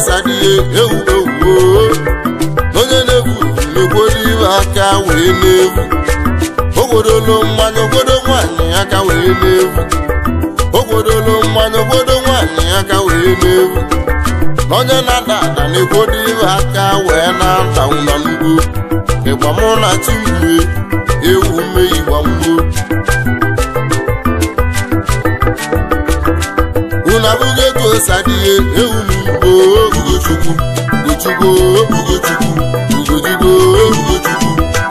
ọsadị oh. onye na-egwu na iwe aka wee na-egwu ogwodolo mmanya ogodo nwanyị aka wee na-egwu ogwodolo mmanya ogodo nwanyị aka na-egwu onye na-ada ada na-egwuru iwe aka wee na-ata ụlọ n'ugbo mụ na ewu Ugochukwu Ugochukwu Ugochukwu Ugochukwu Ugochukwu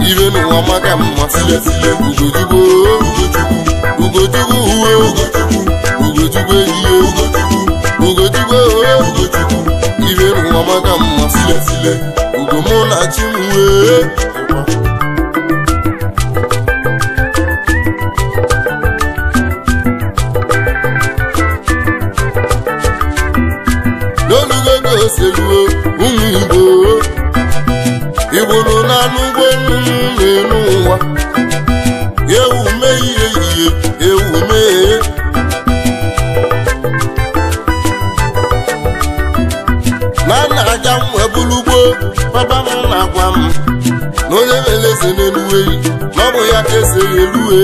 ibe n'ụwa maka mma silesile uwe Ugochukwu ehihie Ugochukwu ohe Ugochukwu n'ụwa maka Ugo na chi m seluo ụmụ Igbo Igbo na anụ ụgbọ na-enu ụwa ewu mee ihe ewu mee na nna aga m ebulugbo papa m na-agwa m na onye mere na-eluwe na ọ bụ ya eze eluwe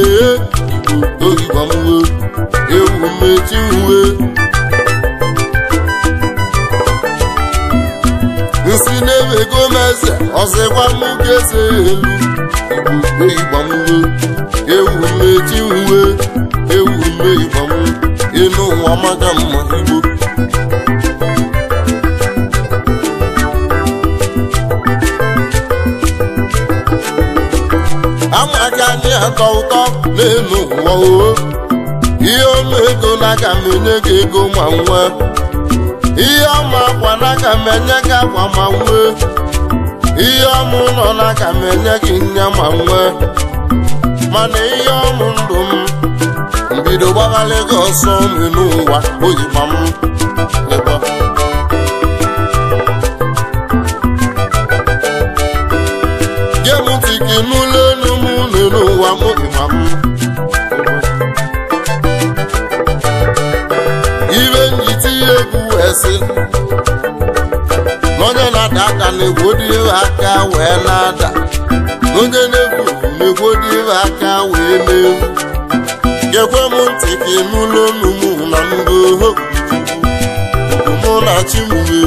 Igbo m ewu mechi anyị na-ewego m eze ọzịkwa me ibamu eze ewu igbamuwe ewu m eji uwe ewu m igbamu ịnụ ụwa maka mma igbo amaka anyị atọ ụtọ n'elu ụwa oo ihe ọnụ na aga me enye gị ego ma nwa ihe ọma mana ka m enye gị akwa ma nwee ihe ọmụ nọ na ka m enye gị nya ma nwee mana ihe ọmụ ndụ m mbido gbaghalị gị ọsọ n'ụwa oyikwa m na-ada aka wee na-ada onye na-efu aka wee na-efu gekwe m ntị ka ịnụla olu m na mbụ mụ na chimekwu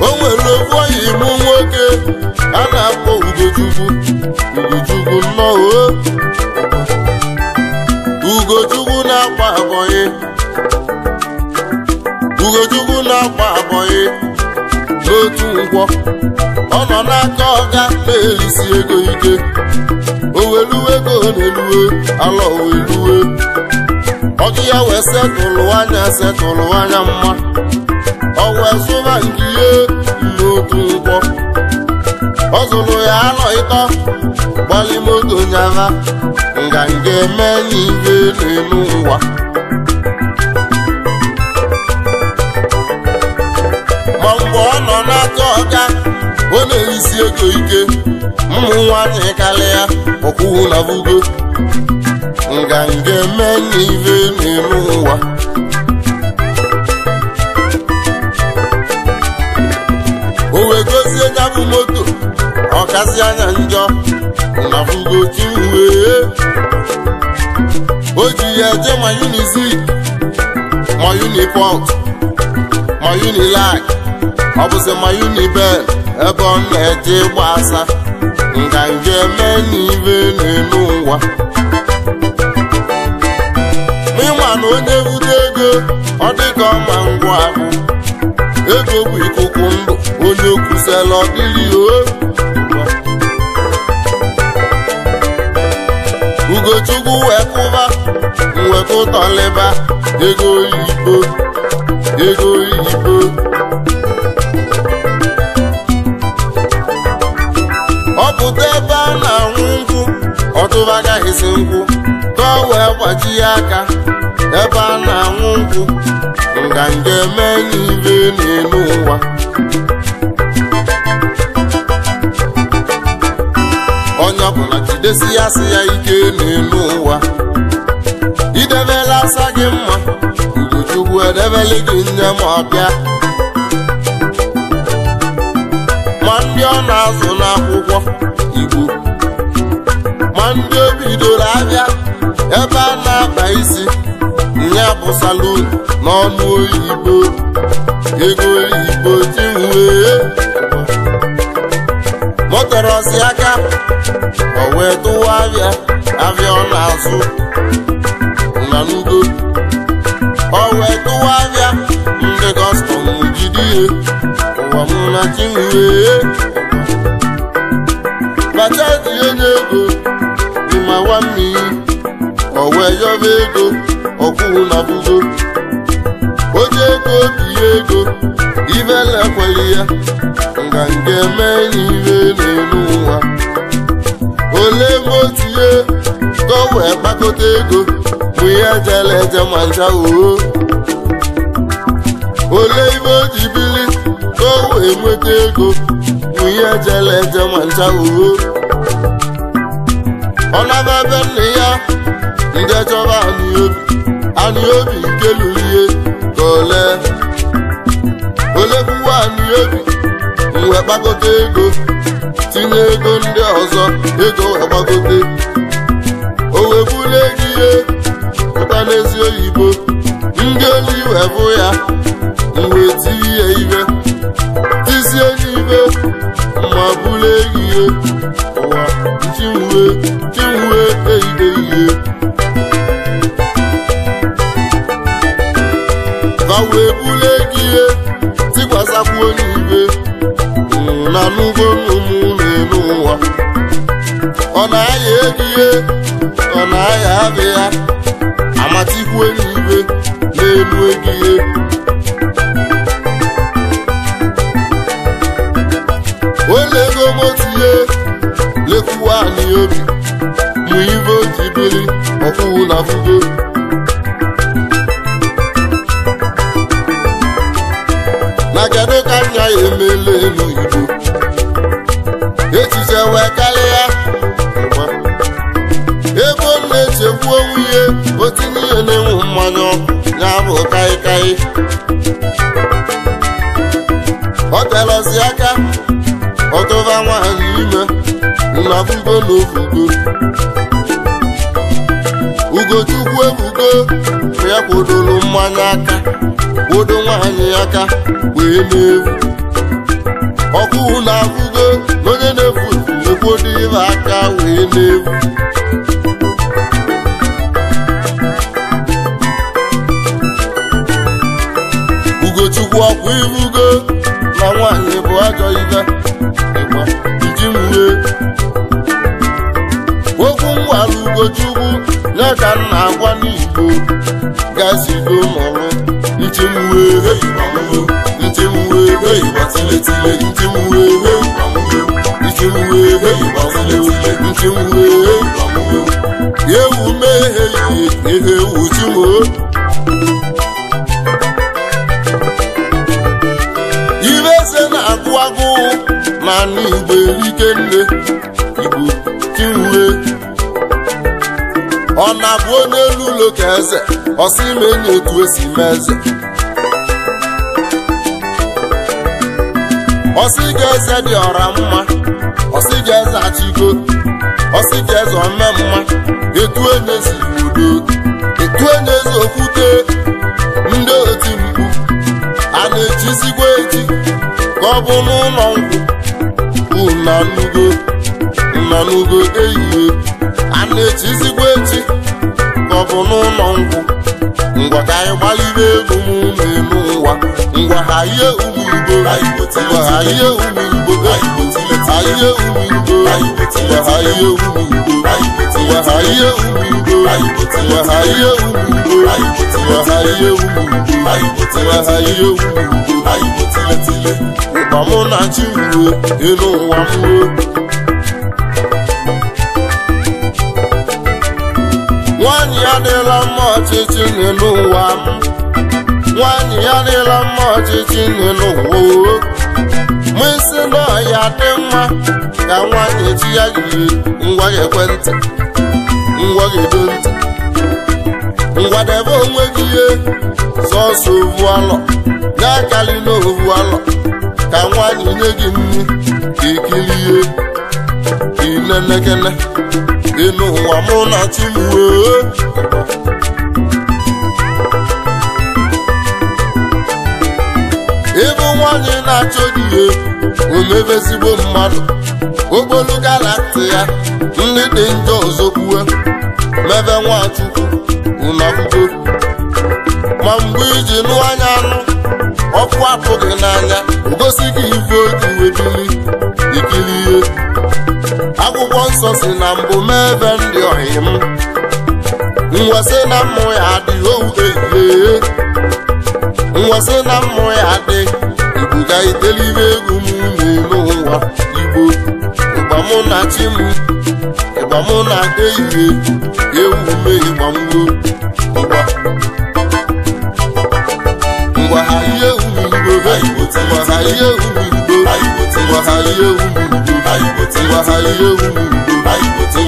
o nwere ofu oyi nwoke a na-akpọ ugochukwu ugochukwu nnọọ na-akwa abọyị ugochukwu na agba abọghị n'otu ngwọ ọ nọ n'aka ọga na-elisi ego ike oweluwe ego na-eluwe ala oweluwe ọgụ ya wee setụlụ anya setụlụ anya mma ọ wee zụba nke ihe n'otu ngwọ ọ zụrụ ya anọ ịtọ gbalimoto nga nganga eme n'ihe n'elu ngwa isi ego ike ụmụ nwanyị karịa ọkwụwụ na vugo nganga eme n'ive n'ime ụwa o wee gozie ya bụ moto ọkasị anya njọ na vugo chiwee o ji ya je ma unizik ma unipot ma unilag ọ bụzi ma unibel ebe ọ na-eje gbasa nganga eme n'ibe n'elu ụwa ịma na onye bute ego ọ dịka ọma ngwa ahụ ego bụ ikuku ndụ onye okwusela ọ o ugochukwu wee kụba mweta ego oyibo ego oyibo pụta ebe a na-anwụ nkwụ ọtụba agaghịzi nkwụ ka wee gbaji ya aka ebe a na-anwụ nkwụ nganga eme enyi ire n'elu ụwa onye ọbụla jidesi ya sị ya ike n'elu ụwa idebela asa gị mma ugochukwu edebele gị nne ma ndị ọ na-azụ n'akwụkwọ igbo ma ndị o bidoro ahịa ebe a na-akpa isi ya bụ salon n'ọnụ oyibo ego oyibo tiwee motorosi aka o wee tụwa ahịa ahịa ọ na-azụ na ndo o wee tụwa ahịa ndị kọstọm jide ihe ọmụma chinwee bacha tinye n'ego ịma nwammiri ọwe yọba ego ọkwụwụ na bụgo oji ego binye ego ibelekweli ya nganga eme n'iwe n'elu ụwa ole ebe o tinye ka o wee ego bụ ihe jele eje ma ncha oo ole ibe o ji bili ka o ego, bụ ego nwunye ejela eje ma ncha uwe ọ ebe nna ya ndị chọba anị obi nke lulie ka ole olekwuwa anị obi wee kpakọta ego tinye ego ndị ọzọ ego wee o wee bụla ihe pụta n'ezi oyibo ndị olu wee bụ ya wee tinye ya ibe. isi enyi ibe ma bụrụ ehihie ụwa chinwe chinwe ehide ihe ka wee bụrụ ehihie tikwasakwu onye ibe na n'ugbo ụmụnne n'ụwa ọ na-aya ehihie ọ na-aya abịa amatikwa enyi na n'elu ehihie onye ego gbotie lekwuo anyị obi mụ ibe oji biri ọkụwụ na fugo na kedu ka nya ya emele n'oyibo echiche wee karịa ebe Ego na-echekwu onwuye otu ihe na enwe mmanya ọkụ ya bụ kaikai ọ aka ime nna ugo na ofugo ugochukwu ebugo ya kwụdoro mmanya aka kwụdo nwaanyị aka wee na-ewu ọkụ na-afụgo na onye na-efu ekwodo aka wee na-ewu ugochukwu ọkwa irugo na nwaanyị bụ ajọ ogochukwu ya ka m na-agwa n'igbo gazigo mụrụ nchimwe nchimwe nchimwe nchimwe ewu mehe ihe ewu ibe eze na-agụ agụ mana igbo igbo ọ na-abụ onye elu ụlọ ka eze ọsị ime enyi etu esi mee eze ọsị ga eze dị ọra mma ọsị ga eze achịgo ọsị ga eze ome mma etu onye ezi udo etu onye ezi okwute ndị oti mkpu a na-echizigwa echi ka ọ bụ n'ụlọ nkwụ nnọnugo nnọnugo eyie na-eti ezigbo eti ka n'ụlọ ngwụ ngwa ka anyị gbaliri ego m na-eme ụwa ngwa ha ihe umurugbo ngwa ha ihe umurugbo ha ihe umurugbo ngwa ha ihe umurugbo ngwa ha ihe umurugbo ngwa ha ihe umurugbo ngwa ha ihe umurugbo ngwa ha ihe umurugbo ụkpa mụ na chi ruo elu ụwa m ruo nwanyị ya dịla mma ọchịchị n'elu ụwa nwanyị ya dịla mma ọchịchị n'elu ụwa mụ isi na ya dị mma ka nwanyị chi ya jiri ngwa ekwentị ngwa edo ntị ngwadebe onwe gị ihe sọsọ ovu alọ ya karịla ovu alọ ka nwanyị nye gị nri ka ihe. niile lekele ịnụ ụwa mụ na e, ịbụ nwanyị na-achọ gị ihe omebe ezigbo mmadụ okpolu galati ya ndị dị njọ zokwue mebe nwachukwu ụnọakwụkwọ ma mgbe iji nụ anya anụ ọkụ apụghị n'anya o gosi gị ife oji webili ikili ihe ọsọ si na mbụ mebe ndị ọyị m nwesị na mmụ ya adị ouehe nwesị na mmụ ya adị ebuga itelibe egwu m na ụwa igbo na chi m ịgba na ehihie ewu me ịgba mgbo ngwa ha ihe wahaye umugo wahaye umugo wahaye umugo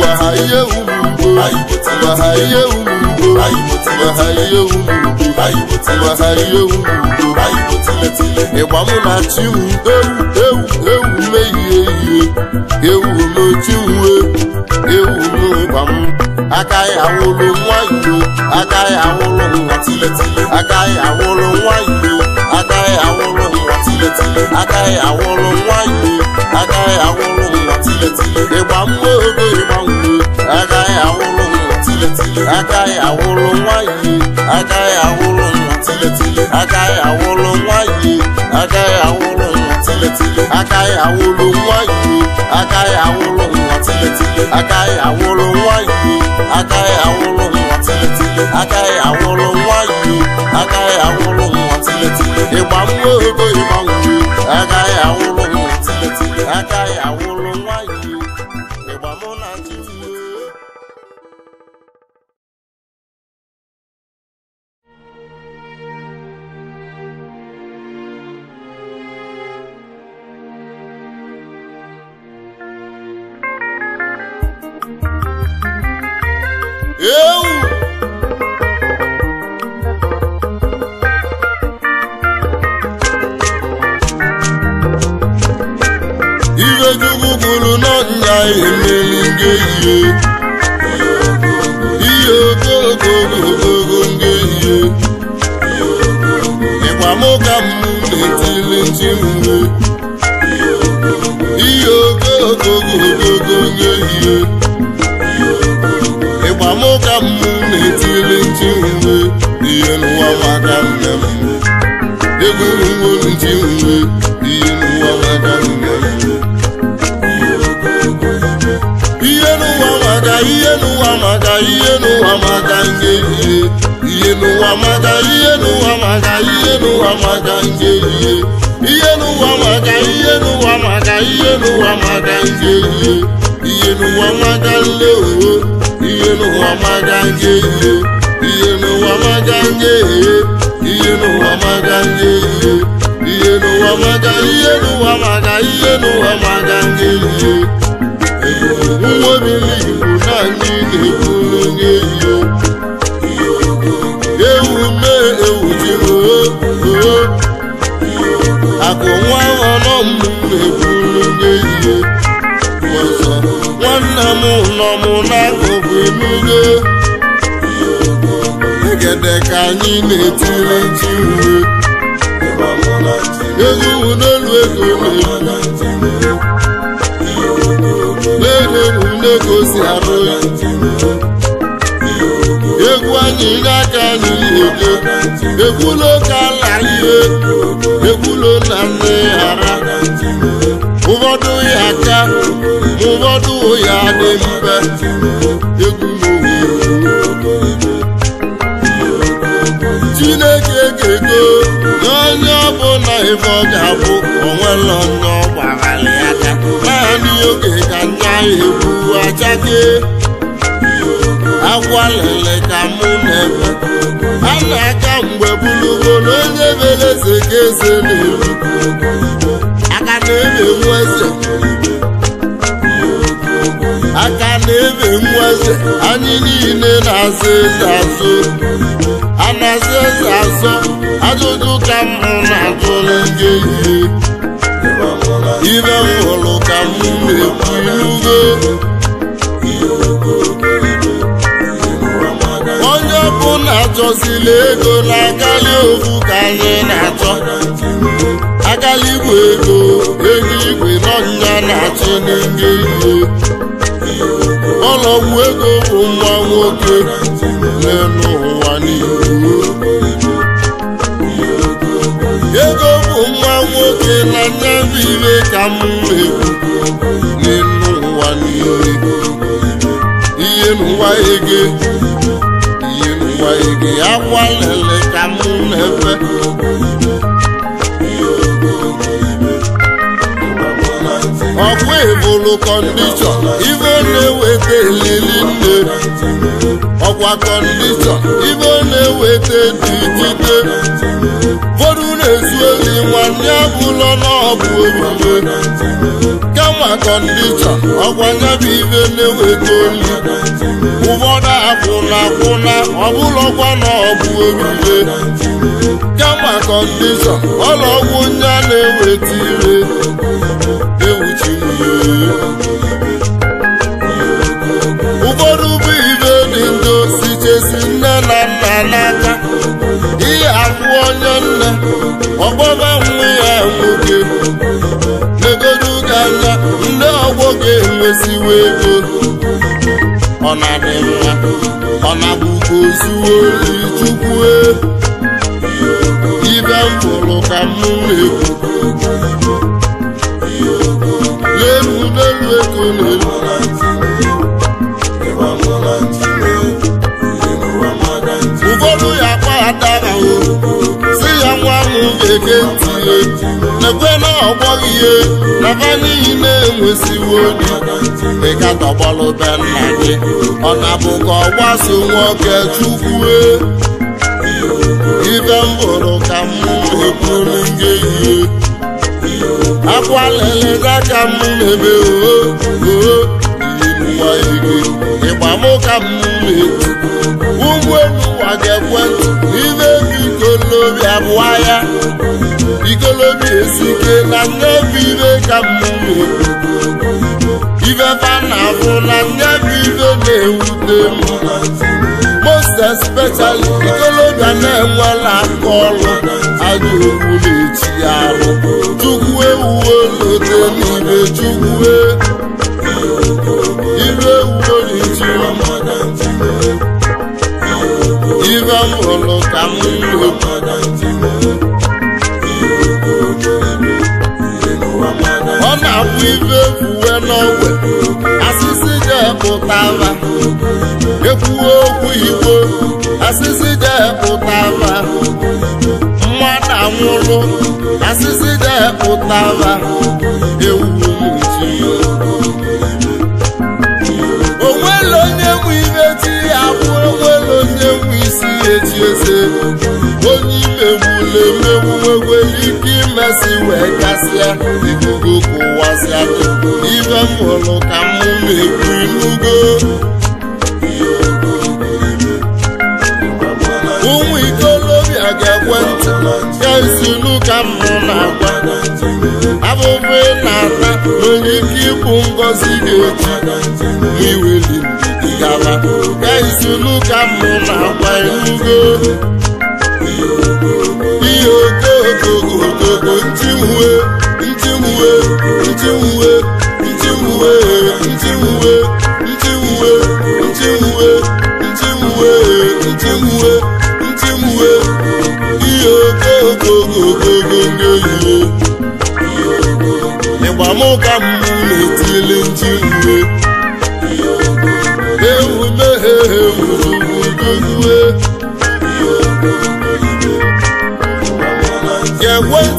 wahaye umugo wahaye umugo wahaye umugo ịgba mụ na chiwu ewu ewu ewu mehie ihe ewu n'ochiwu ewu n'ụgba m agaghị awụrụ nwa igbo agaghị awụrụ nwa agaghị awụrụ nwa igbo agare àwọn olórin hàn tiletile agare àwọn olórin wáyé agare àwọn olórin hàn tiletile ìgbà mú ògbé ìgbà ń gbé agare àwọn olórin hàn tiletile agare àwọn olórin wáyé agare àwọn olórin hàn tiletile agare àwọn olórin wáyé agare àwọn olórin hàn tiletile agare àwọn olórin wáyé agare àwọn olórin hàn tiletile agare àwọn olórin wáyé agare àwọn olórin. alága ìyàwó maga nje ihe n'ụwa ihe nje ihe n'ụwa maga ihe n'ụwa maga ihe n'ụwa na ihe ewu nne ewu jiri oo nwanna m nọ emenye egede ka anyị na-etiri ji uwe egwu n'elu ego na-eru na-egosi arụ egwu anyị n'aka anyị na-ede egwu n'oke ala ihe egwu na nne ghara ụfọdụ ya aka ụfọdụ ya dị mfe egwu chineke ga-ego onye bụ na ife ọ ga-abụ onwelo onye ọ aka naanị oge ka ndị ahụ achake agwa lele ka mụ na-ebe a na-aka mgbe bụlugolo onye beleze ka eze na-eru aka na-emenwu eze aka na-ebe nwa eze anyị niile na-azụ eze azụ a na-azụ eze azụ ajụjụ ka mụ na-ajụrụ gị ibe m hụrụ ka m na-ekwu ilugo onye bụ ọbụla chọsila ego na-akalị ofu ka anyị na-achọ akalị igwe ego ego igwe nọ nya na-achọ n'enge ihe ọlọgwụ ego bụ nwa nwoke n'elu ụwa n'ihu ego bụ nwa nwoke na nyabibe ka m mewu n'elu ụwa n'ihu ihe n'ụwa ege ihe n'ụwa ege agwalele ka m na-efe ọkwa ebulu kọndishọ ibe na-eweta elili nne ọkwa kọndishọ ibe na-eweta dikite bodu na-ezu eli nwanne abụlọ n'ọbụ omume kama kọndishọ ọkwa nyabụ ibe na-eweta oli ụfọdụ akwụna akwụna ọbụlọkwa n'ọbụ omume kama kọndishọ ọlọgwụ a na-eweta ire ụfọdụ bụ ibe dị ndụ sichesi nne na nna n'aka ihe afụ onye nne ọgbọba nwa ya nwoke legodo anya ndị ọgbọ ga-enwesiwa ego ọ na-adị mma ọ na-abụkwa ozuwo e. ibe m ka m na n'elu n'elu ego n'elu ụfọdụ ya akpaghatara si ya nwa m ga-ege ntị n'ekwe na ọgbọghị ihe naba n'ihi na-enwesiwo dị ị katọgbalụ be nna gị ọ na-abụ ka ọ gbaso nwoke chukwue ibe mbụrụ ka m eburu gị akwa lele n'aka m mebe oooigo ịgba m ka m mee ikolobi ya ikolobi esike na nnebi ibe ka m mee na afụ na nnebi ibe na-ewute m most especially ikolobi a na-enwela aka ọrụ ajọ okwu na-eti ya ahụ chukwu ewuwe n'oche n'ibe chukwu ibe ewuwe n'iji ibe m hụrụ ka m lụ ọ na-abụ ibe ekwuwe n'ọwe asịsị ga-epụtara ekwuwe okwu igbo asịsị ga-epụtara lụrụ asịsị depụtara egwu onwere onye nwe ime ti ya bụ onwere onye nwe isi ya eji eze onye imegbule mmegbu nwegwere ike imesi wee gasịa ikuku kụwasịa ibe m hụrụ ka m na-ekwu inugo na-ata onye ike ịbụ ngọzi ga-eji iweli gala gaizulu ka mụ na-agwa ndị ihe ndị ntiwe ndị ntiwe ndị ntiwe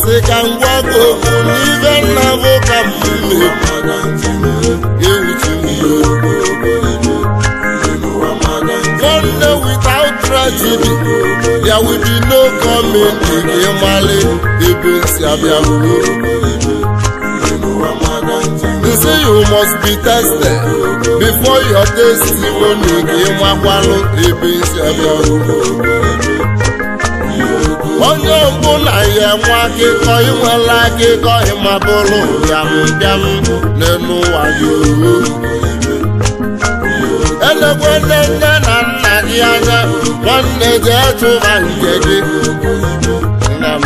si ka m n'ibe nna bụ ka m nwanne without tragedy ya be no gọọmenti ka ebe nsi abịa They say you must be tested before your testimony ka ịmakwanụ ebe nsi abịa onye mbụ na ya nwa akụkọ inwela akụkọ ịmabụrụ bịambịam n'elu ụwa yaoru elekwele nne na nna gị anya nwanne gị etụba nke gị nna m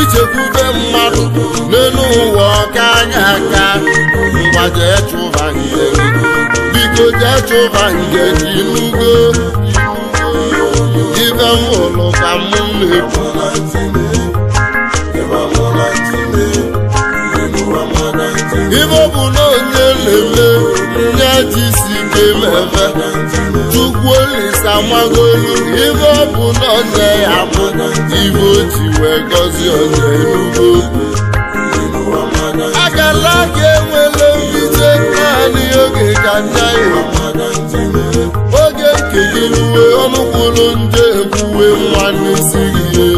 ichekwube mmadụ n'elu ụwa ọka anya aka mgba jee chụba nke gị biko jee chụba nke gị n'ugbo ebe m ụlụ ka m na-ekwu ibe ọ bụ na onye lele nye ji si ike mebe chukwu olisa amago elu ibe ọ bụ na onye ya bụ ibe o ji ka enwele mbite kekere uwe ọnụkwụlụ nje ekwuwe nwa n'isi gị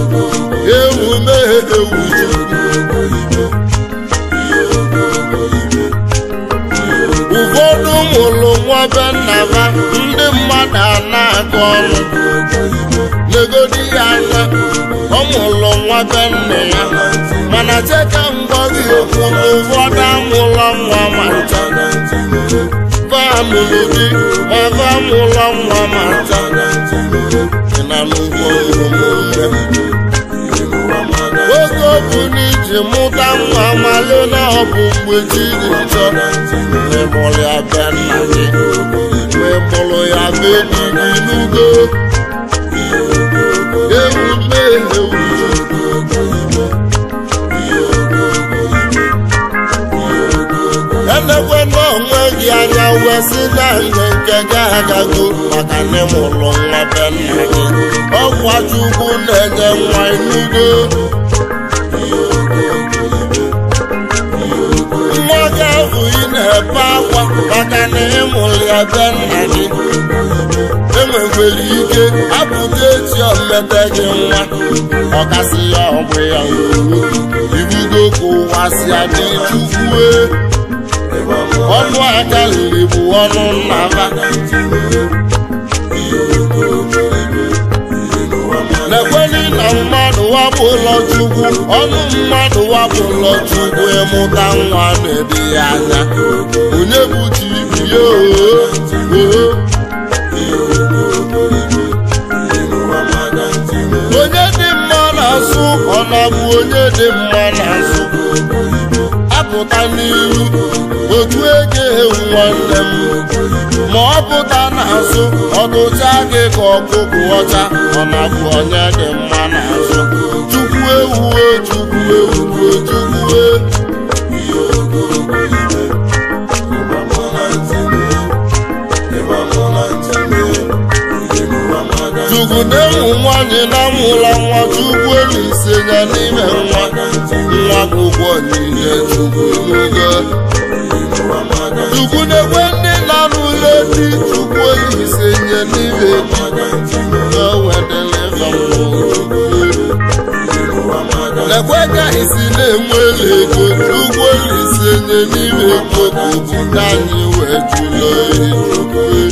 ewu ya ewu ụfọdụ mụrụ nwa be nna ha ndị mmadụ a na-akọ ọrụ. legodi ya anya ọ mụrụ nwa be nna ya mana cheta ngọzi ụfọdụ amụla nwa ma mụrụ dị ebe a mụrụ nwa ma na oge obu n'iji mụta nwa malụ na ọ bụ mgbe jiri chọ ịmụrụ ya bịa nna gị ya n'ugo president nke ga-agago maka n'ime ụlọ nwa be nna gị ọgwa chukwu na-enye nwa inugo nwa gị ahụ ị na-ebe akwa maka na ịmụrụ ya be nna gị enwekwere ike abụghị echi omete gị nwa ọkasị ya ọgbụ ya ibugo ka ụwa si chukwue ọnụ aka liri bụ ọnụ nna ha na-ekweli na mmadụ wabụ ụlọ chukwu ọnụ mmadụ wabụ ụlọ chukwu ịmụta nwa na-ebe ya anya onye bụ tibi ya onye dị mma na-asụ ọ na-abụ onye dị mma na-asụ pụta n'iru otu ege nwanne m ma ọ pụta n'azụ ọ gụchaa gị ka ọkụkụ ọcha ọ na-abụ onye dị mma n'azụ chukwu ewu chukwu ewuwe chukwu Ude nwanyị na-amụla nwa chukwu elu ise ya n'ime nwa nwa ụgbọ niile chukwu na-ekwe ndị na-alụle di chukwu elu nye n'ime ekwe ka isi na-enwe ego chukwu elu ise nye n'ime ego bụ anyị wee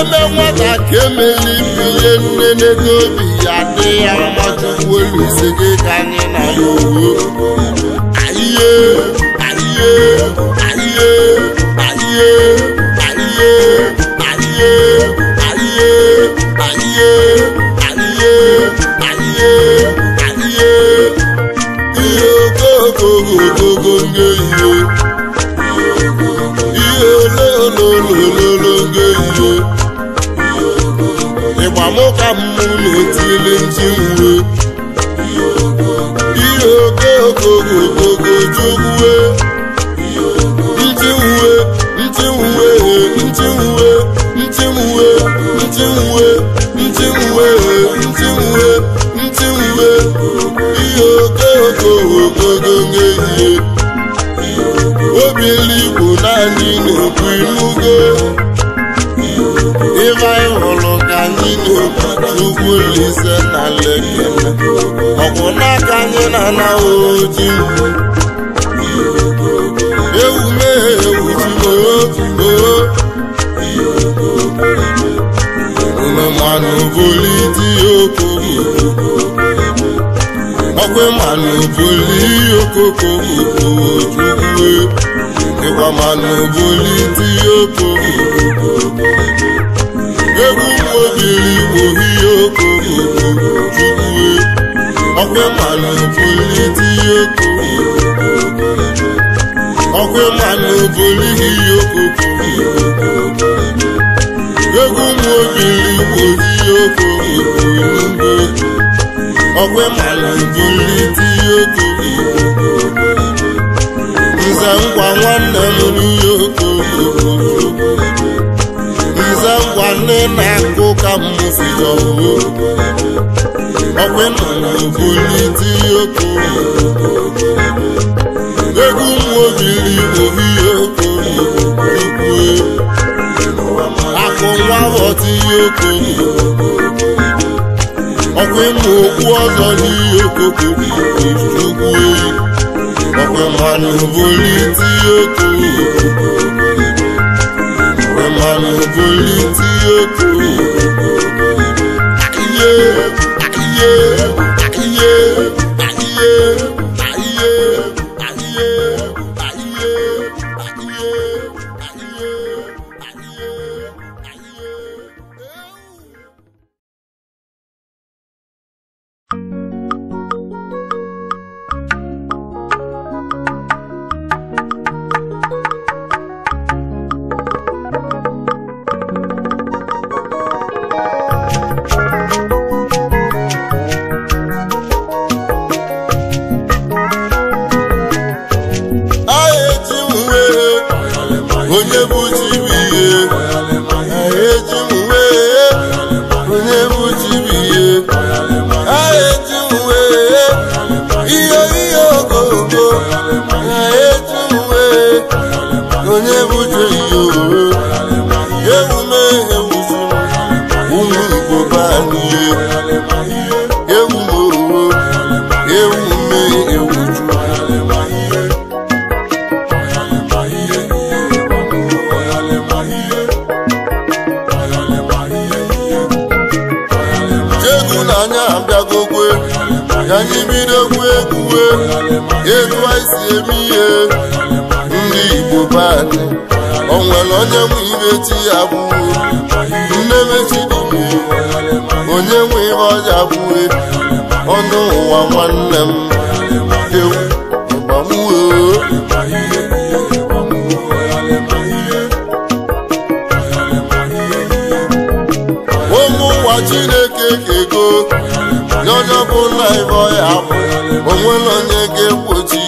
eme nwata ka emeli ihe nne n'ego obi ya dị ya mmadụ olu ise gị ka anyị na ya owu. mụ na etili ndị uwe ihe oke ndị uwe ndị uwe ndị uwe ndị oke ndị uwe uwe ihe naanị na-ekwu n'ugwu Olise na Lekki ọkwụ n'aka anyị na anaghị ojii ewu mehe ewu jiooounumanụ boli di okoko ọkwa ojuwe ịkwa manụ boli obìnrin mo rí oko òkòkò ojúwe ọpẹ́ màlà òbólé tí oko òkòkò ẹ̀jẹ̀ nza ngwa nwanne m rí oko omenala bulite oko egwu nwaobili ohie oko ukwe akụ nwa ghọtihe oko ọkwa ịmụ okwu ọzọ n'ihe okoko ukwe ọkwa mmanụ bulite oko ọkwa mmanụ bulite oko yeah. o nwere onye nwe ibe ti ya bụ mmemechi dị onye nwe ibe ọja bụ ọnụ ụwa nwanne m ewu ịgbanwuo ụmụ ụwa chineke ga-ego n'onye ọbụla ibe ọya bụ onwere onye ga-egbochi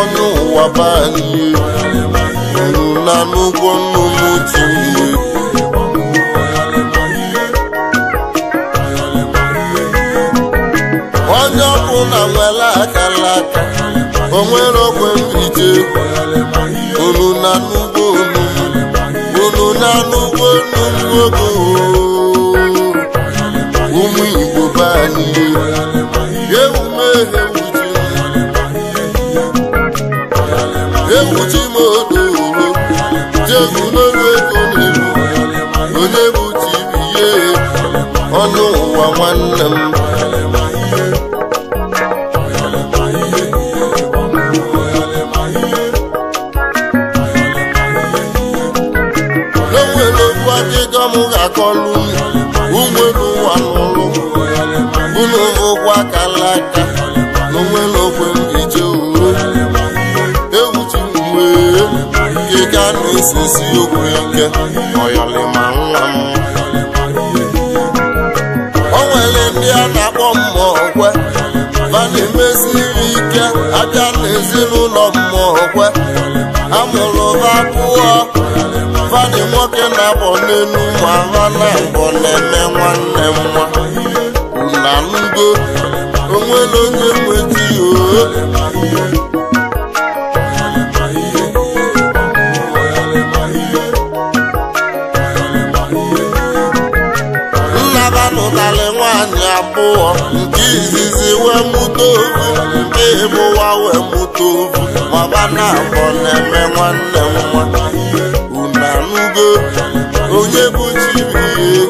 ọnụ ụwa baa n'ihe na n'ụgwọ nnu m otu ihe onye ọkụ na nwere akara aka o nwere ogwe mrite unu na nnukwu unu na ụmụ igbo be ewuchi m ọnụ ụwa nwanne m enwere okwu ga-akọlụ unwere ụwa n'ụlụ unu okwu akala aka na onwere okwe m na-esesi abịa n'ezinụlọ mmụọ a amụrụ ha pụọ fani nwoke na-abọ n'elu nwa ha na mbọ na-eme nwanne nwa na ngo onwere onye nweta ya nna ha nụtarị nwaanyị abụọ nke izizi wee mụ afọ na-eme nwanne m nwa unu onye bụ chibuihe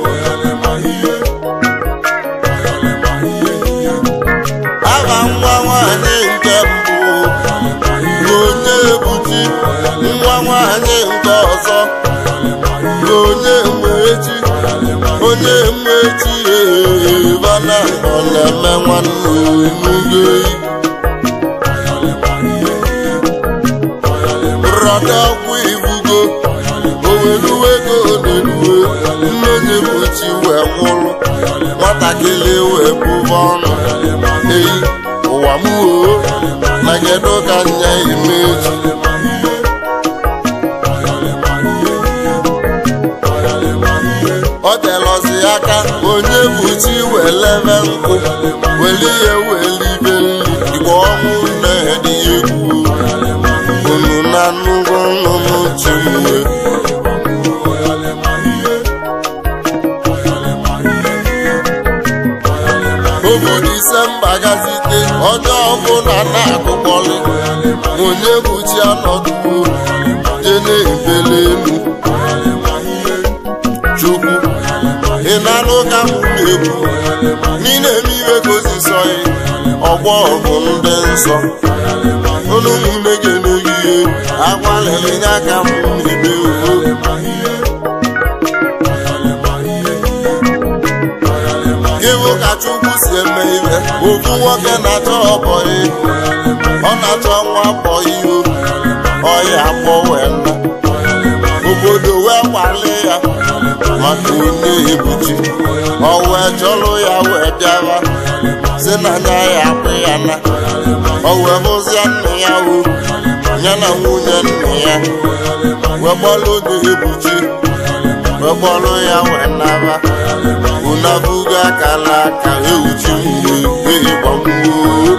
aha nwa nwanyị nke mbụ onye ebuchi nwa nwanyị nke ọzọ onye eti onye mwechi ee na ọ na-eme nwanne m ihe. ọdụ akwụ ibugo oweruwe ego na-eruwe mmezi mpochi wee kwụrụ nwatakịrị wee bụba ọnụ eyi ụwa m oo na kedu ka nya imeju ọ telọzi aka onye bụ chi wee lebe nkụ weli ihe weli ibe nri igwe ọnwụ na na-achọ obodo Isemba gazite onye ọbụla na-agụkpọlị onye bụ chi anọtupu je na-ebele elu chukwu ị na-anụ ka m na-ekwu n'ile eme iwe ka osisọghị ọgbọ bụ ndị nsọ agbalịrị ka m ebe si eme nwoke na-achọ ọ na-achọ nwa bọyị ihu ọya akpọwe obodo wee ya maka onye ebuchi ọ wee chọrọ ya wee bịawa si na anya ya na wee bụzie nna ya uru ya na nwunye nna ya wee gbalụ oge egbuchi wee gbalụ ya wee naba unabugo akala aka ewuchi nwunye ehi gbamgbuo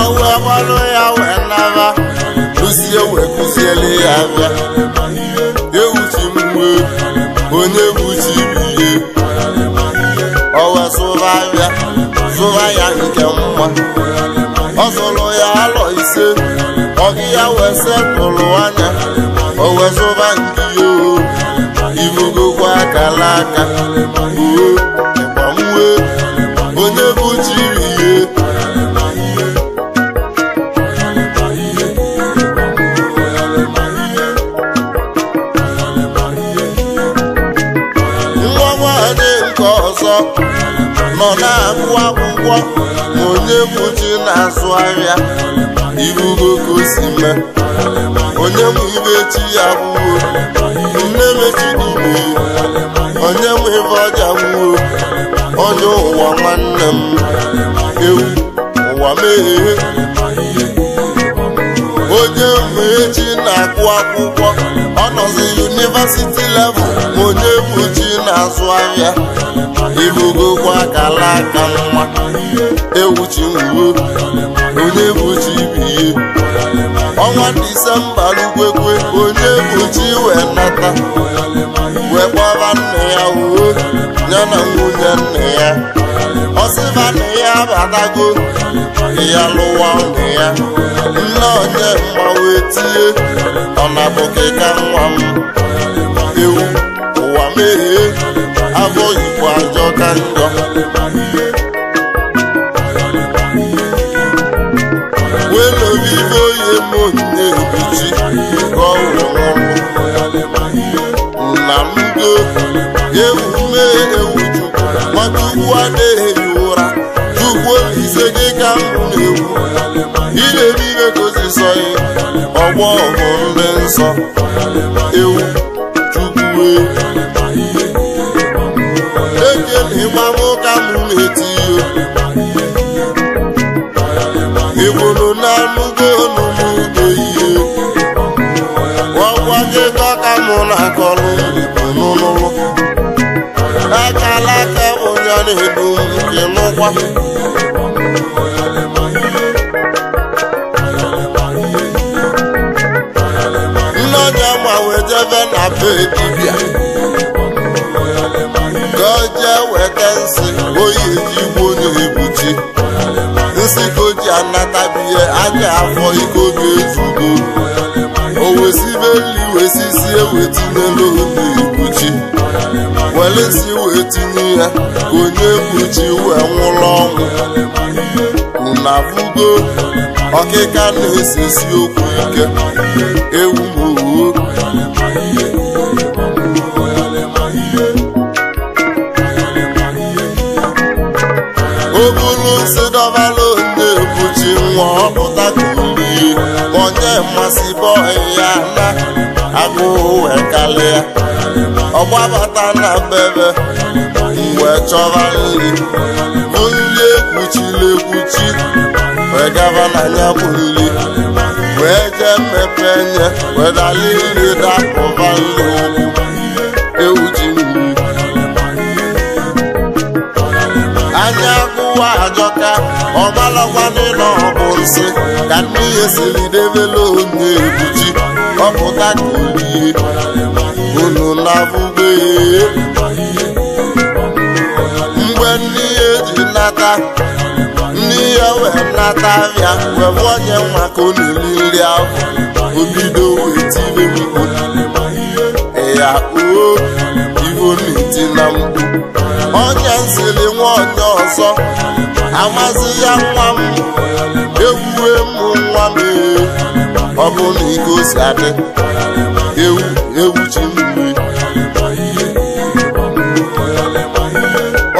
ọwe gbalụ ya wee naba kụzie wee kụziele ya aba ewuchi mgbe onye buchi ibiye ọwe sụba ya sụba ya nke nwa ọzụlụ ya alọ ise ọgị ya wee sekpụlụ anya o wee zụba nke ya ibogokwa akala aka uwe ịgbanwe onye bụ jiri ihe nwa nwanyị nke ọzọ nọ na-agụ akwụkwọ onye kwuchi na-azụ ahịa irugo ka si mee onye mụ ibe chi ya gwuo nne mechidugbu onye mụ ibe ọja gwuo onye ụwa nwanne m ewu ụwa meghee onye mụ echi na-akụ akwụkwọ nọzi yunivesiti level onye buji na-azụ ahịa ibugokwa akala aka nwa ewuchi nwuo, onye buji bihe ọnwa disemba lugwekwe onye buji wee nata wee kpọba nne ya uwe na nwunye nne ya ọsịba nne ya abatago ya lụwa nne ya nne onye mma wee tie ọ na-abụghị ka nwa m ewu ụwa meghee afọ igbo ajọ ka njọ wee welere ibe onye m onye ebuchi ka ọ wụrụ nna m go ewu mee ewu chukwu nwata ugwu adịghị agwọ bụ ndị nsọ ewu chukwu ekenịma m ka m na-eti ịbụrụ na anụgo n'ụmụgo ihe ọgwa gị dọka m na-akọrọ n'ụlọ akala aka ụnyaahụ edo nke n'ụkwa dibịa ka o jee weta nsị oyi ji igbo na-ebuchi nsị o ji anatabihe anya afọ iko ga-ezugo o wesibeli wesisi ewetinelu na-ebuchi welesi wee tinye ya onye buchi wee nwụrụ ọnwụ na vugo ọkịka na-esesi okwu ike ewu m owo mmasị bọọ ya na agụụ e wee kalịa ọgbabata na bebe mgbe chọba nri onye ekwuchiri ekwuchi wee gaba na anya bụ nri wee jee mmepe nye wee dali nri dapụba nri agọka ọmalọkwa n'ịlọ ọbụ nsị ka mmiri siri debela onye ebuji ọpụta ka olie unu na-abụbe mgbe ndị eji nata ndị ya wee nata ya mgbe onye nwa ka ọ nri ahụ obido wee tiri ya igwuriti na mgbu onye nsili nwa onye ọzọ amasị ya nwa m ewuwe mụ nwa m ọ bụ na igosi adị ewu ewu ji mmiri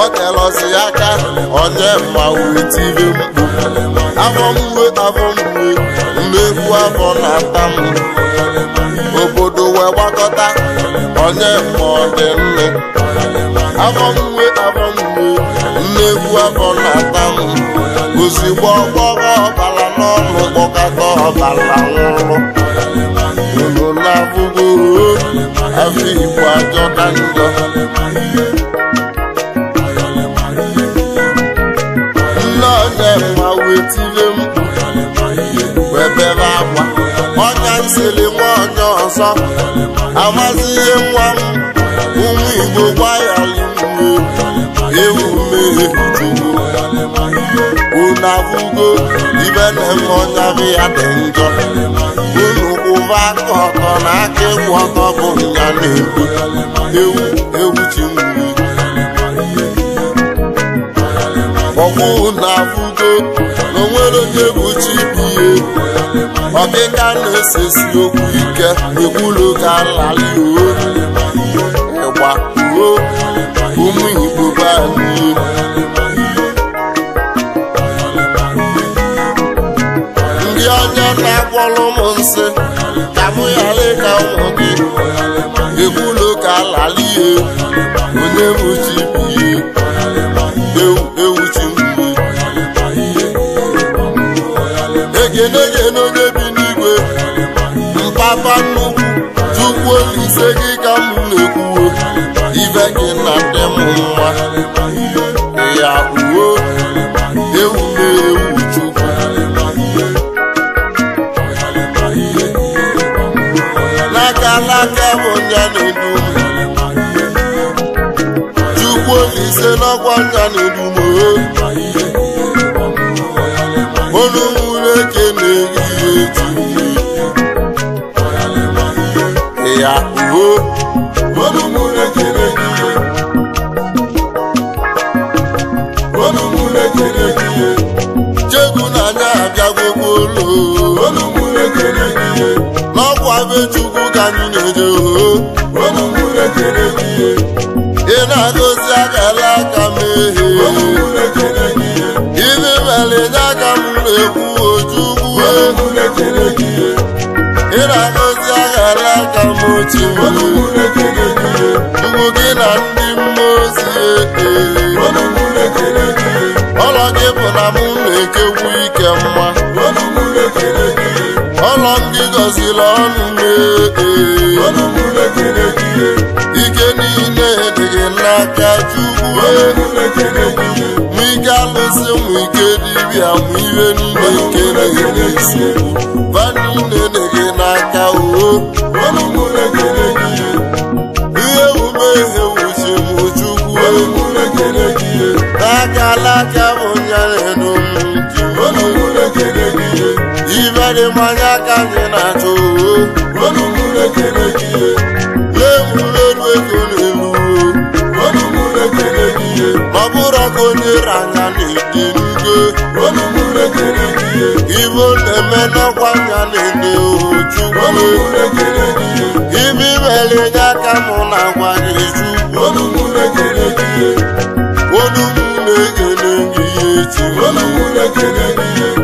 otelọsi aka onye ma wetire mkpu afọ mgbe afọ mgbe mmegbu afọ na-ata m obodo wee gbakọta onye mụọ dị nne afọ mgbe afọ mgbe mmegbu afọ na-ata m ozugbo ọgbọrọ ọbara n'ọnụ kpọkọta ọbara nwụrụ unu na-abụbụrụ afọ igbo na njọ nne onye mma wetire m webere akwa ọnya nsịrị nwa onye ọzọ amazighị nwa m ụmụ igbo gbayalụ ewu mmehie unu abụgo ibe na-eme ọnya bụ ya dị njọ unu kwụba aka ọtọ na aka ịkwụ ọtọ bụ nya na-ekwu ewu ewu chimmiri ọkwụ unu abụgo na onwere onye bụ chi bụ ihe ọbịka na-esesi okwu ike ekwulu ka nlali ịgba o ụmụ Igbo be anyị ndị ọjọọ na-akpọrọ ụmụ nsị ka mụ ghara ịka ụmụ gị ekwulu ka nlali onye bụ chi ewu ewu chi mmiri egene egene ise gị ka m na ekwu ibe gị na ndị m nwa ya uwe ewu na-ewu chukwu n'aka n'aka bụ nya na-edu chukwu ise n'ọkwa nya na-edu chegwu na anya ụlọ ka anyị na ọ na-agọzi agala aka na ị na aka m ochie chukwu gị na ndị mmụọ ozi na mụ na-ekekwu ike mma ọlọ ndị gọziri ọnụ na-ee ike niile dị gị n'aka chukwu n'ike alụsị m ike dibịa m ike niile ike na-esi mmanya aka gị na-achọ oemureruegoelu ọ bụrụ ọkụ onye ranya na-ede ugo na-eme n'ọkwa nya na-ede ojugo ibe imere nye aka mụ na agwa na-eju onumụ na-egele ihe echi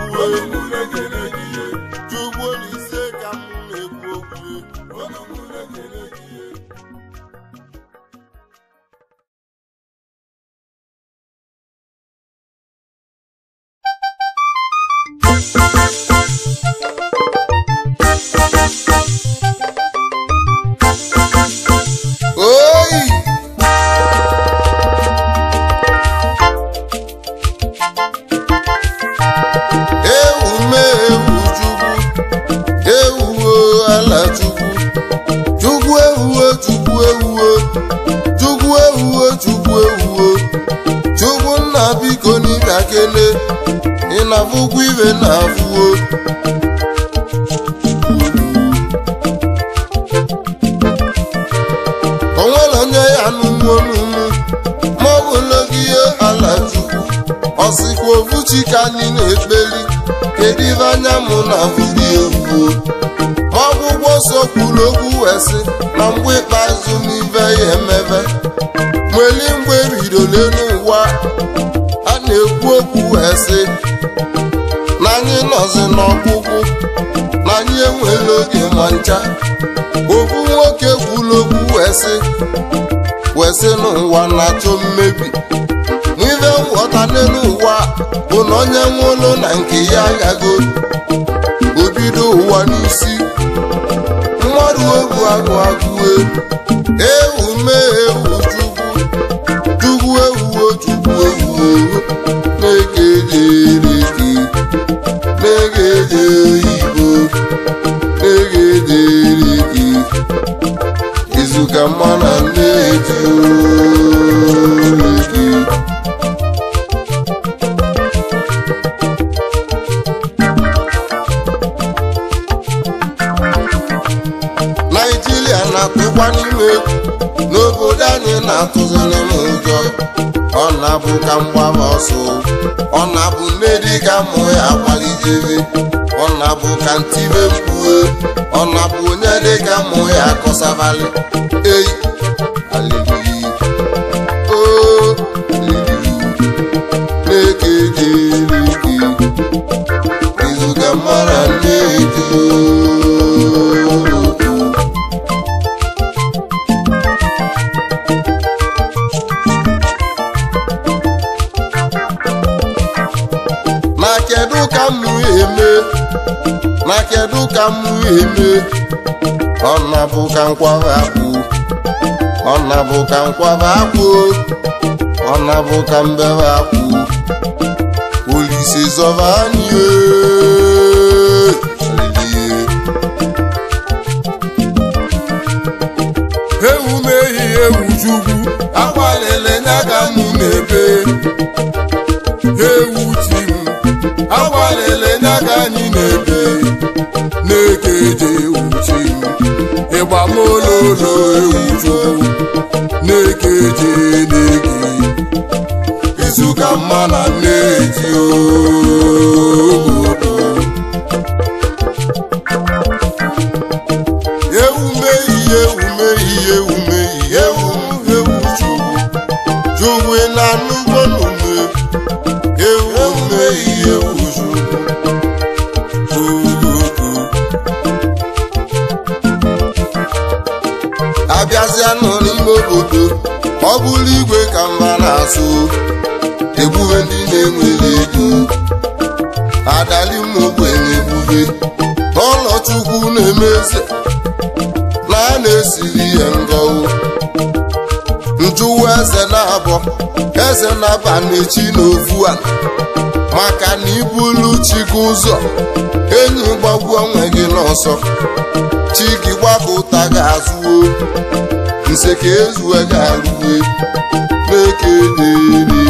na-afụ ụgwọ iwe na-afụo ụlọ ncha okwu nwoke kwuru okwu wesị wesị n'ụwa na-achọ mmebi n'ive nghọta n'elu ụwa bụ na onye nwe ụlọ na nke ya aghago obido ụwa n'isi mmadụ ogu agụ agụ ewu mee ewu chukwu chukwu ewuo chukwu ewuo na-ege ejere na-ege ejere ka mma na nleji gị naijiria na-atụkwa n'ime. n'obodo anyị na-atụziri m ụjọ ọ na-abụ ka mgbaba ọsọ ọ na-abụ mmeri ka mụ ya agbalịjere ọ na-abụ ka ntibe mkpue ọ na-abụ onye dịka mmụ ya kọsavali eyi ọ eme ọnabụ ka nkwaba akpụ ọnabụ ka nkwaba akpụ ọnabụ ka mbebe akpụ olise zọba anyị ewu mehie ewu chukwu akwalele nya ka mụ na ede ịgba na-eke je na-eke mma na nne ji eze na a na-esiri ihe ngọwụ njụwa eze na-abọ eze na-aba n'echi n'ofu a maka na ibulu chi ụzọ enyi gbagbuo onwe gị n'ọsọ chi gị gbapụ ụta gị azụwo nse ka ezuwe gị arụwe na-eke dịrị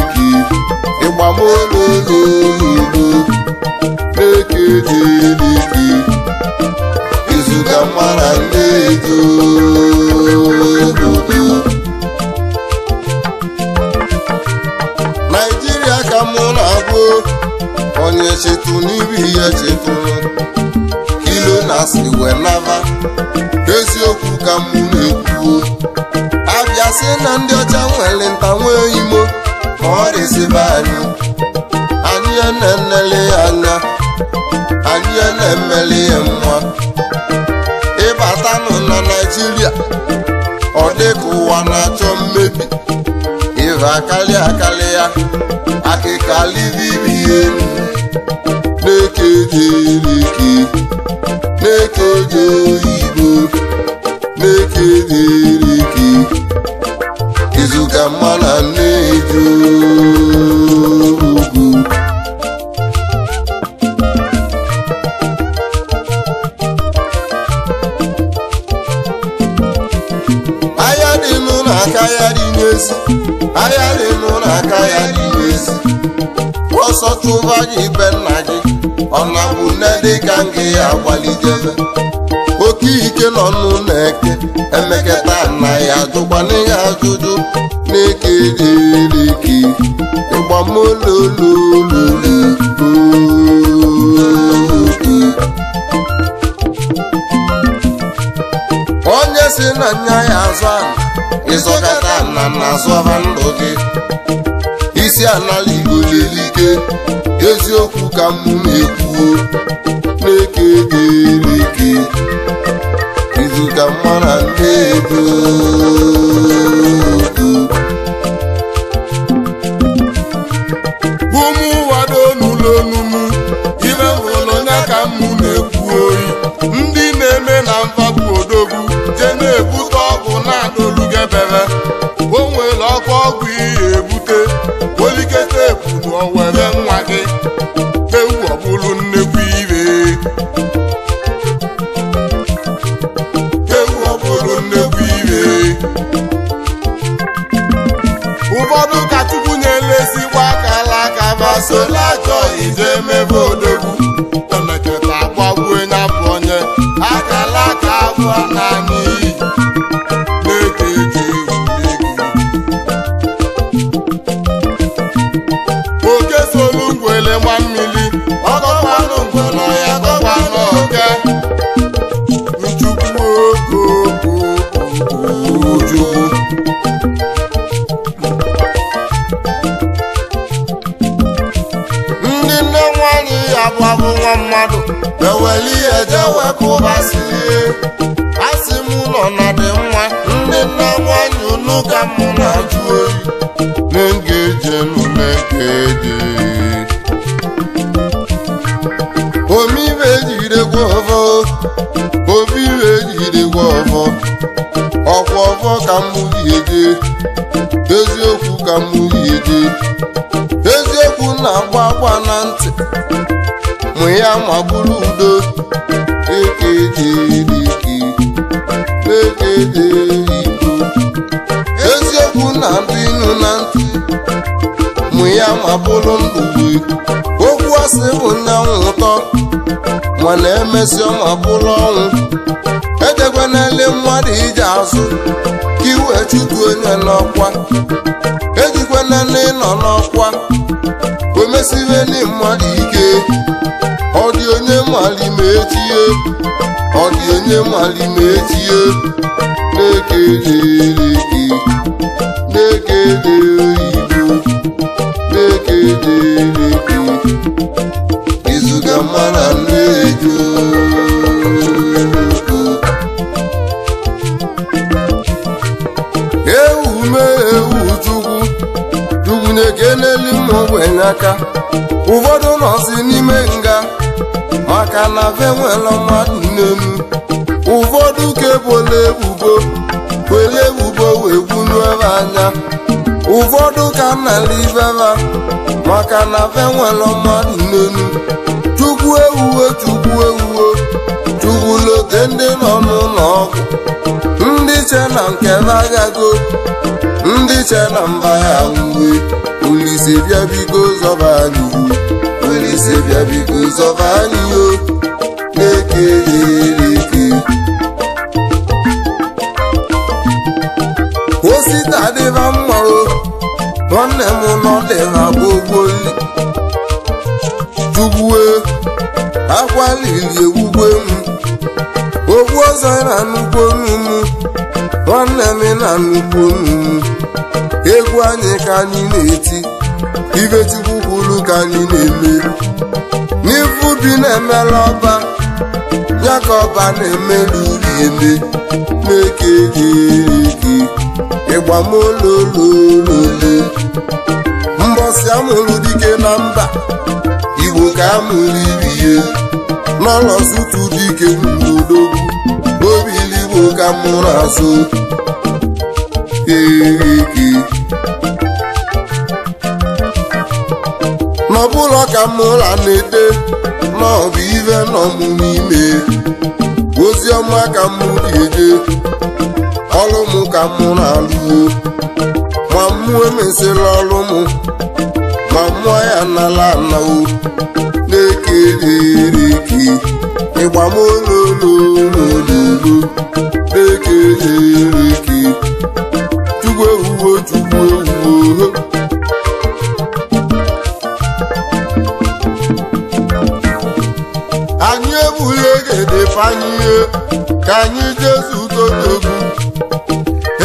na akali akali ya akịka livivi ka m gị ya oke ike nọ nụ na eke emeketa na ya ajụkwana ihe ajụjụ na-eke dereke ịgbamololololo onye si na nya ya azụ ala ịzọkata na na azụ ha ndụ gị isi anala igbo lelike eziokwu ka m na-ekwuo ike dị ike izu ka mma na nne ọ bụrụ udo eziokwu na ndụ ịnụ na ntị mụ ya ma bụrụ ndụ okwu asị bụ nna nwụtọ mana emesịa ma bụrụ ọnwụ edekwanele mmadụ ije azụ ka iwe chukwu onye n'ọkwa ejikwana nne nọ n'ọkwa omesibe ndị mmadụ ike malimetie ọ dị onye malimetie na etie gị na-ekele oyibo na-ekele gị izuga mara nnedo na-ekenelu mma ogbenye aka ụfọdụ nọsị n'ime nga maka na ve nwere mmadụ n'elu ụfọdụ ka ebola ebubo were ebubo wee ebe anya ụfọdụ ka nnala ibeba maka na ve nwere mmadụ n'elu chukwu ewuwe chukwu ewuwe chukwu lote ndị nọ n'ụlọ ọgwụ ndị che na nke agago ndị che na mba ya uwe olise bịabigo zọba nwere isi bịa biko zọba anyị o na-eke erike osita dịba mma o nwanne m nọ dịba gbogboli jugbuo akwalili ewugwe m ogbu ọzọ na nnukwu onumu nwanne m na nnukwu onumu egwu anyị ka anyị na-eti ibetigbu ka anyị na-eme n'ifu bi na emere ọba ya ka ọba na-emela uri eme na-eke eke ịgbamolololole mbọsi amụrụ dike na mba igbo ka amụrụ irihe n'ọlọzutu dike n'udogwu obi iligbo ka mụrụ azụ eke n'ọbụla ka mmụla na-ete n'ọbụ ive n'ọmụmụ ime ozi ọma ka mụ ga-eje ọrụ mụ ka mụ na-alụo ma mmụọ emesịla ọrụ mụ ma mmụọ ya nala anao na-ekerereke ịgbamolololololo na-ekerereke chukwu ewuwo chukwu ewuwo edefanye ihe ka anyị jezutodobu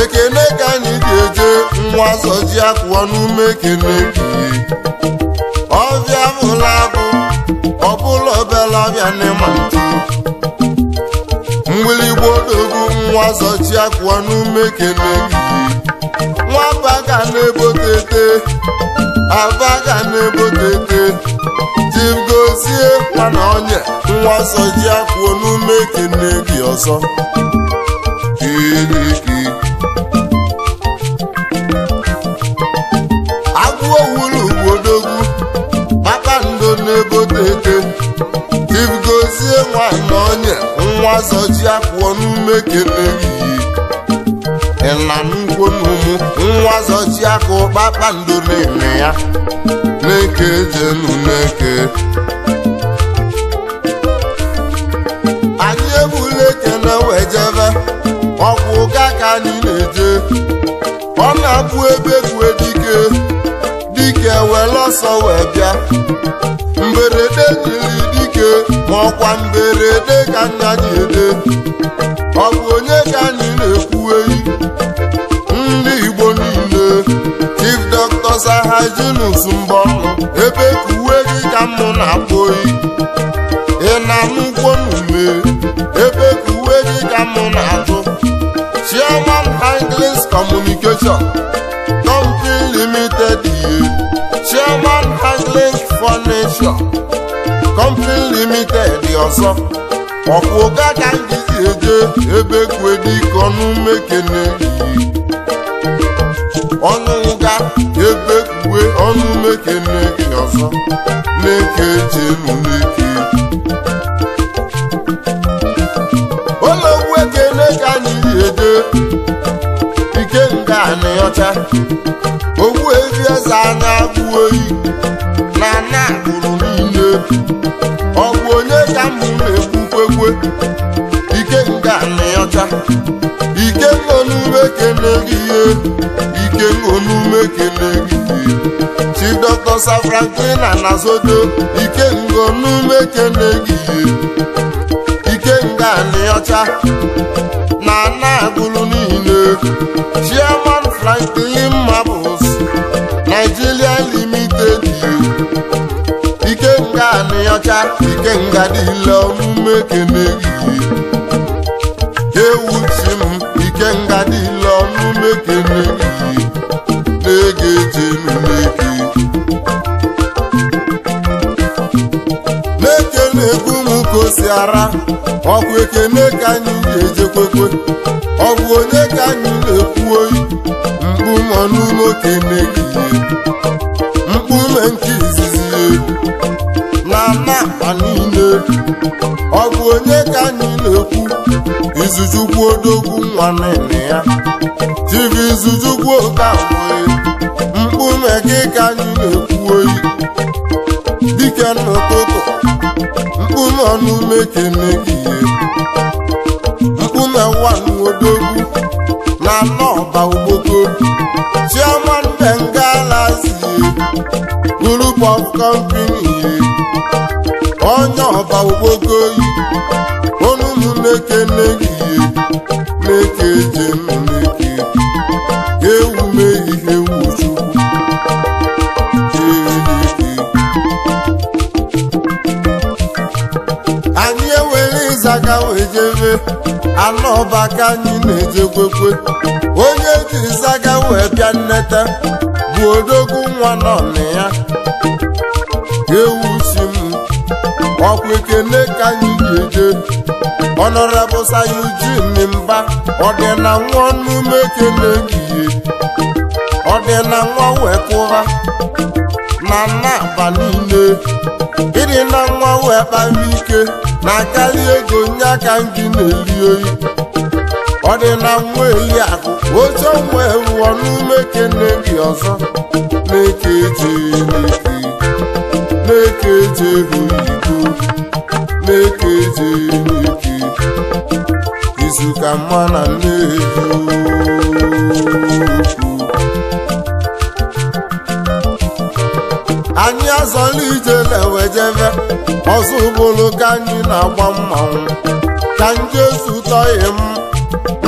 ekene ka anyị ga-eje nwa soji akụọ n'ume ekene kiri ọbịa bụla abụ ọbụla obelabịa n'ịma ntụ mgbirigbo odogwu nwa soji akụọ n'ume ekene kiri nwaba ga na-ebotete aba na-ebotete jigozie mana onye nwa ọsọ ji n'ume ekene gị ọzọ kiriki agụọ wuru ugbodogwu kpakpando na-egote eke jigozie nwanyị na onye nwa ọsọ ji n'ume ekene gị ịla nkwonumu nwa ọsọ ji akụ kpakpando na-eme ya Chineke jelu n'eke anyị ebula eke na wejebe ọkwụ ụga ka anyị na-eje ọ na-abụ ebe kwue dike dike were ọsọ wee bịa mberede jiri dike ma ọkwa mberede ka nna ji ede ọ bụ onye ka anyị ọzọ ha jinus mbọ ebe ka uwe gị ka mụ na-akpụ oyi ị na-anụ ụgwọ n'ume ebe ka uwe gị ka mụ na-atụ Chairman Hanklins Communication Company Limited ihe Chairman Hanklins Furniture Company Limited ọzọ ọkwụ ụga ka m gizi eje ebe kwediko n'ume ọnụ ụga ọnụ mekene ọzọ na-eke eche nụ n'ike ụlọgwu ekene ka anyị eje ike nga na ọcha ogwu ezi eze a na-abụ oyi na na agbụrụ niile ọ bụ onye ka m na-egbukwekwe ike nga na ọcha ike nọ n'ume kene gị ihe ike nọ n'ume kene gị ihe Dr. Sir Franklin Anazodo Ikengo n'umekene gị Ikenga n'ọcha na na-agụlụ niile Chairman Franklin Marbles Nigeria Limited Ikenga n'ọcha Ikenga dịla n'umekene gị Ewuchi m Ikenga dịla n'umekene gị na-ege eche n'umekene ka o si ara ọkụ ka anyị ga-ejekwekwe ọ bụ onye ka anyị na-ekwu oyi mkpu mọ n'ụlọ okene gị mkpume nke izizi ihe. na na akpa niile ọ bụ onye ka anyị na-ekwu izuzukwu odogwu nwa nne ya tv izuzukwu okewe mkpume gị ka anyị na-ekwu oyi dike n'ụtụtụ mkpụrụ ọnụ meke megihe mkpụ na nwa odogwu na ala ọba ogboko chioma nne nga lazie of company onye ọba ogboko yi ọnụ meke megihe meke jem ijebe anụ ọba ka anyị na kwekwe onye jiri zaga wee bịa nneta bụ odogwu nwa nọ na ya ewu si m ọkwa ekele ka anyị ga-eje ọnọrabụ sayujin mba ọdịna nwa ọnụme ekele ehihie ọdịna nwa na nna aba ịdị na nwa wee kpara ike na akarị ego nye aka gị na-eri oyi ọ dị na nwa eyi akụ oche wee wụọ n'ume kene gị ọzọ na-eke eje na-eke eje oyibo na-eke eje izu ka mma na nne eju anyị azọla ije na-ewejeve ọzọ ụbụlụ ka anyị na-agba mmanwụ ka njesu tọghị m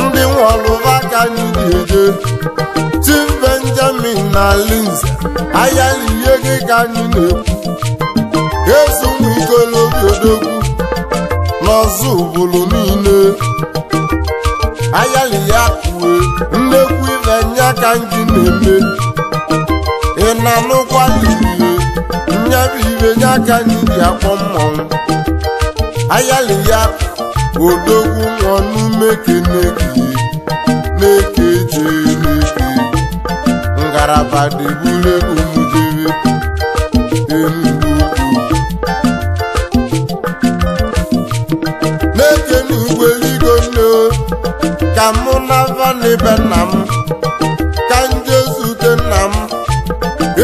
ndị nwọlụva ka anyị dị eje tim benjamin na linze ayalihe gị ka anyị na-ekwu ezugbo ikolobi odogwu n'ọzọ ụbụlụ niile ayali ya kue nnekwu ibe nya ka anyị na-eme ị na-anụkwali ya bụ ibe nye aka n'ibi akpọ mmọnwụ ayali ya odogwu nọnụ n'umeke na-eke je n'eke ngaraba dị egwu jere enugwu na-eke n'ugwu eligo nne ka mụ na vanibe nna m ka nje zute nna m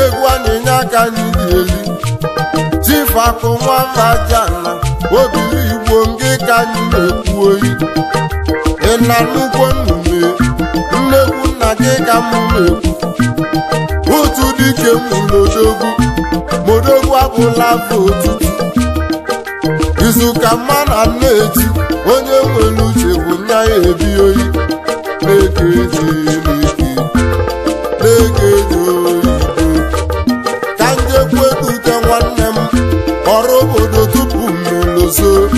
egwu anyị nye aka n'ibi ọfakụ nwamajana obiri igbo nke ka anyị na-ekwu oyi ị na nnukwu nnume nnekwu nna gị ka mụ na-ekwu otu dike mmụlodogwu modogwu abụla bụ ụtụtụ izu ka mma na nna onye nwere uche bụ nya ya ebi oyi na-ege eji na oyi udo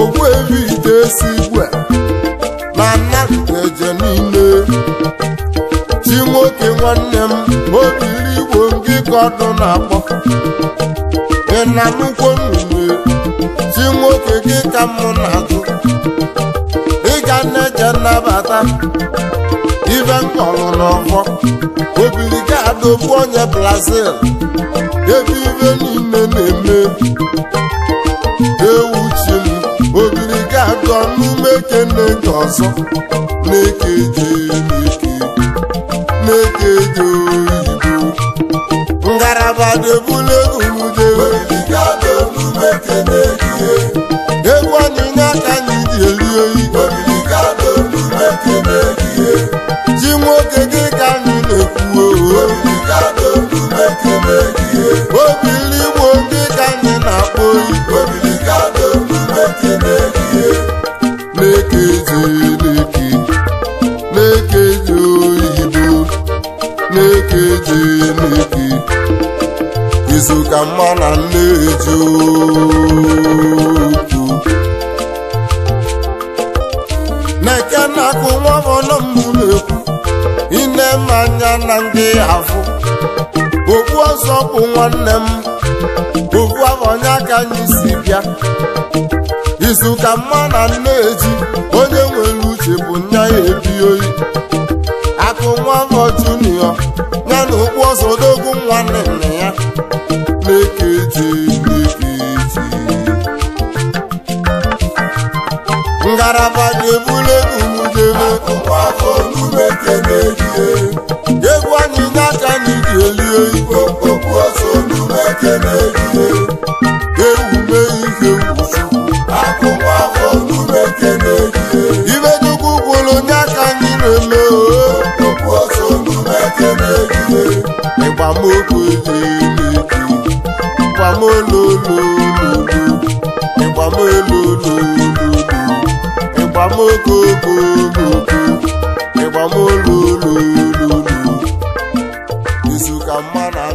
ogbuebido si igwe na eje niile chi nwoke nwanne m obiri igbo ndị ka ọdụ na-akpọ ịnanukwu nnume chi nwoke gị ka mụ na-agụ ịga na-eje nnabata ibe nkọlụ n'ọfọ obili ga-adọbu onye brazil ebe ibe niile na-eme Ewu m obiri ga-akọ n'ime kene nke ọzọ na-ekeje na-ekeje oyibo ngaraba debula egwu egwu anyịnya ka anyị ji eri oyi ji nwoke gị ka anyị na-ekwuo oh, oh. ka mma na nleju na-eke na-akụ nwa m ọnụ m na-ekwu ine m anya na ndị afụ okwu ọzọ bụ nwanne m okwu afọ nya ka anyị si bịa izu ka mma na nneji onye nwere uche bụ nya ya ebi oyi abada ebula egwujebe egwu anyị n'aka na iji elie igbo ibe dugwu gwụrụ nye aka anyị na-eme ịgbamokwu ịgbamololololu ịgbamolololu ịgbamolulululu izu ka mma na